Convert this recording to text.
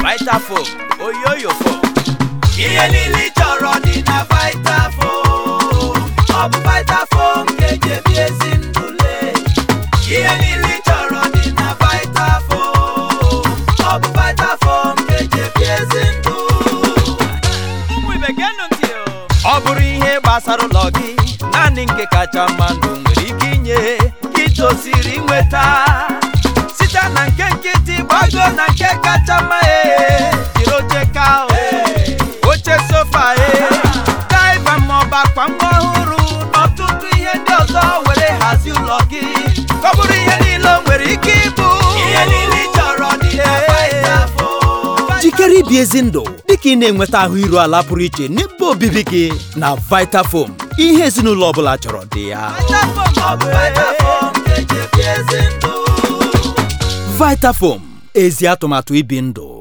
Vitafoam oyoyo foam ihe niile ị chọrọ dị na Vitafoam ọ bụ vita ga-eji ebi ezi ndụ lee ihe niile ị chọrọ dị na Vitafoam ọ bụ Vitafoam ga-eji ebi ezi ndụ ọ bụrụ ihe gbasara ụlọ gị naanị nke kacha mma ndụ nwere ike inye gị tosiri nweta gbago na nke kacha mma ee eh. jiri oche ka eh. oche sofa ee eh. daiva maọbụ akwa mgbe ọhụrụ n'ọtụtụ ihe ndị ọzọ were hazie ụlọ gị ọ bụrụ ihe niile o nwere ike ịbụ ihe niile ị chọrọ jikere ibi ezi ndụ dịka ị na-enweta ahụ iru ala pụrụ iche n'ebe obibi gị na Vitafoam ihe ezinụlọ ọbụla chọrọ dị ya Vitafoam ezi atụmatụ ibi ndụ